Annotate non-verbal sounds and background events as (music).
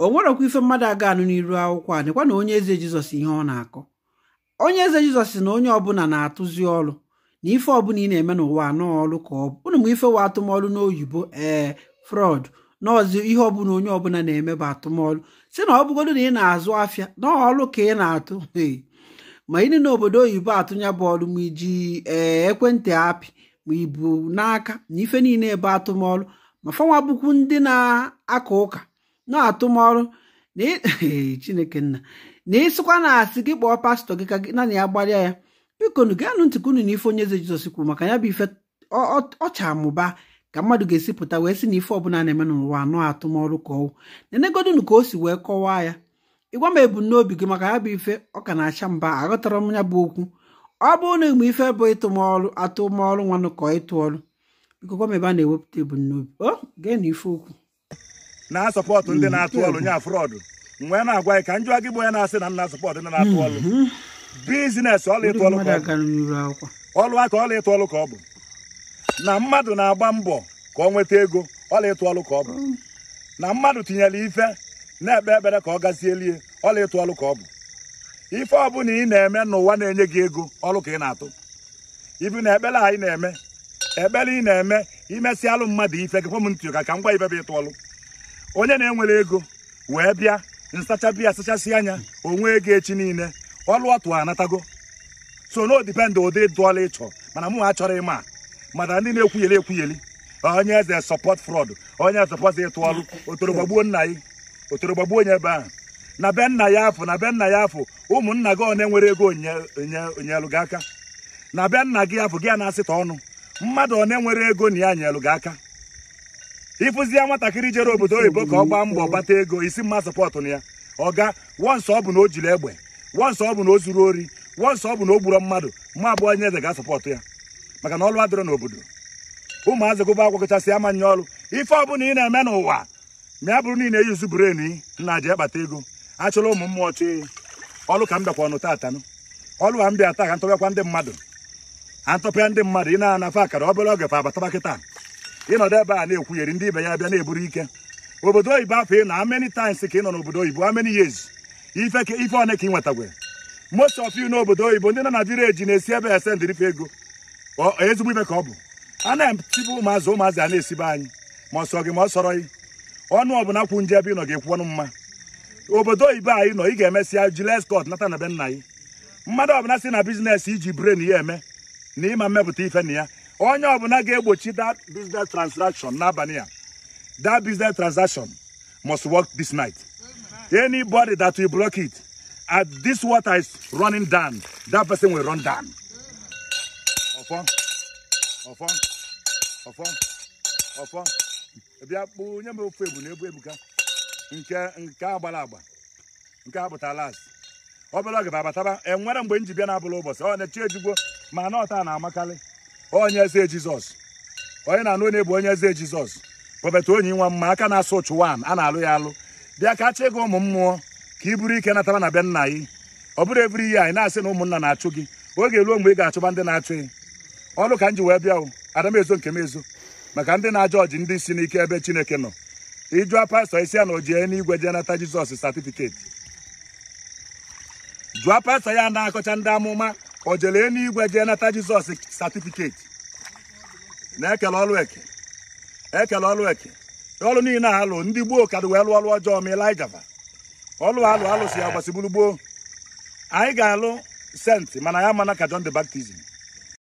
o nwerekwa ife mmadụ aga anụ n'iru akwụkwọ a dịkwa na onye eze jizọs ihe ọ na-akọ onye eze jizọs na onye ọbụla na-atụzi ọrụ na ife ọbụla ị na-eme n'ụwa nọọ ọrụ ka ọ bụ ụnụ ma ife wa atụmọrụ n'oyibo ee frọd n'ọzi ihe ọbụla onye ọbụla na-eme bụ atụmọrụ si na ọ bụgodo na ị na-azụ afịa ọrụ ka ị na-atụ ma ịdị n'obodo oyibo atụnya bụ ọrụ ma iji ee ekwentị apị ma ibu n'aka na ife niile ebe atụmọrụ ma fọnwa bụkwu ndị na-aka ụka na-atụmọrụ e, (laughs) chineke nna na ịsịkwa na-asị gị kpọọ pastọ gị ka gị naanị ya gbalịa ya bikonu gaanụ ntị unu n'ife onye eze jizọs kwuru maka ya bụ ife ọcha amụba ka mmadụ ga-esi pụta wee sị na ife ọbụla na-eme n'ụwa anọ atụmọrụ ka ọwụ nenegodinu ka o si wee kọwaa ya ịgwa m ebumnobi gị maka ya bụ ife ọ ka na-acha mba aghọtara m ya bụ okwu ọ bụrụ na igbe ife bụ ịtụmọrụ atụmọrụ nwanụ ka ịtụ ọrụ biko gwa m ebe a na-ewepụta ebumnobi o gee na ife okwu na-asọpọtụ ndị na-atụ ọrụ nya frọdụ mgbe na-agwa gị ka njụwa gị ya na-asị na m na-asọpọtụ ndị na-atụ hmm. ọrụ bizinesi ọlụ ịtụ ọlụ aka ịtụ ọlụ ka ọ bụ na mmadụ na-agba mbọ ka ọ nweta ego ọla ịtụ ọlụ ka ọ bụ hmm. na mmadụ tinyere ife na-ekpe ekpere ka ọ gazie lie ọla ịtụ ọlụ ka ọ bụ ife ọbụla ị na-eme n'ụwa na-enye gị ego ọlụ ka ị na-atụ ibu na ekpere anyị na-eme ekpere ị na-eme alụ mmadụ ife gakwa m ntị ka ka m gwa ife bụ ịtụ ọlụ onye na-enwere ego wee bịa nsacha biya asachasị anya onwe ego echi niile ọlụ ọtụ anatago so no dipendị ụdị dụọla ịchọ mana mụ chọrọ ịma mana ndị na-ekwugheli ekwugheli onye eze sọpọt frọd onye sọpọt ịtụ ọlụ otorogba nna ya otorogba onye ebe ahụ na be nna ya afọ na be nna ya afọ ụmụnna gị one nwere ego onyelụ gị aka na be nna gị afọ gị a na-asịta ọnụ mmadụ one nwere ego na ya nyelụ gị aka ịfụzie nwatakịrị jere obodo oyibo ka ọ gbaa mbọ gbata ego isi mma sọpọtụ na ya ọ ga wọnsọ ọ bụ na o jiri egbe wọnsọ ọ bụ na o zuru ori wọnsọ ọ bụ na o gburo mmadụ ma abụọ nye eze ga sọpọtụ ya maka na ọlụ adịrọ n'obodo ụmụazị gụba akwụkwọ kachasị amanye ọrụ ife ọbụna ị na-eme n'ụwa ma ya bụrụ na ị na-eyuzu brenu nna ji akpata ego achụla ụmụ mmụọ chụ ọlụ ka m bịakwa ọnụ taata ọlụ ka m bịa taa ka ntọpịakwa ndị mmadụ antọpịa ndị mmadụ ị na akara obere oge fa abataba kịta ịnọdụ ebe a na-ekwugheri ndị ibe ya bịa na-eburu ike obodo oyibo afọ ị na many times ka ị nọ n'obodo oyibo amany years ife one ka ị nwetagwe most of you n'obodo oyibo ndị nọ na vileji na-esi ebe ese ndirife ego ezigbo ibe ka ọ bụ a na-etibe ụmụazị ụmụazị a na-esibe anyị ma ọ gị ma ọ sọrọ gị ọnụ ọbụla kwu nje ebe ịnọ ga-ekwu ọnụ mma obodo oyibo anyị nọ ị ga-emesịa jile cot nata na be nna gị mmadụ ọbụla si na biznes iji bren ya eme na ịma mmepụta ife na ya onye ọbụla ga-egbochi that business transaction n'abalị a that business transaction must work this night anybody that will block it at this water is running down that person will run down ọfọ ọfọ ọfọ ọfọ bịa kpụ nye m ofe ebu na ebu ebuka nke nke agbara agba nke apụtala azụ obere oge ba abataba enwere mgbe m ji bịa na abụla ụbọchị ọ na-echi ejigwo ma na ọta na-amakarị onye eze jizọs onye na-anụ onye bụ onye eze jizọs prọfet onyi nwa mma aka na-asụ ụchụ wan a na-alụ ya alụ bịa ka chịa ego ụmụ mmụọ ka ị bụrụ ike natara na be nna gị ọ bụrụ ebiri ihe anyị na-asị na ụmụnna na-achụ gị oge ruo mgbe ị ga-achụba ndị na-achụ gị ọlụ ka m ji wee bịa o adamezo nke m ezo maka ndị na ajọ ọjị ndị si n'ike ebe chineke nọ ịjụa pastọ isi ya na o jee n'igwe jee nata jizọs satifiketi jụọ pastọ ya na-akọcha ndị amụma o jere igwe jee nata jizọs satifiketi na-ekele ọlụ eke ekele ọlụ eke ọlụ niile alụ ndị gboo kadụ wee lụọ ọlụ ọjọọ ma ilaijava ọlụ alụ alụ si ya gbasigburu gboo anyị ga-alụ senti mana ya mana ka John the baptizim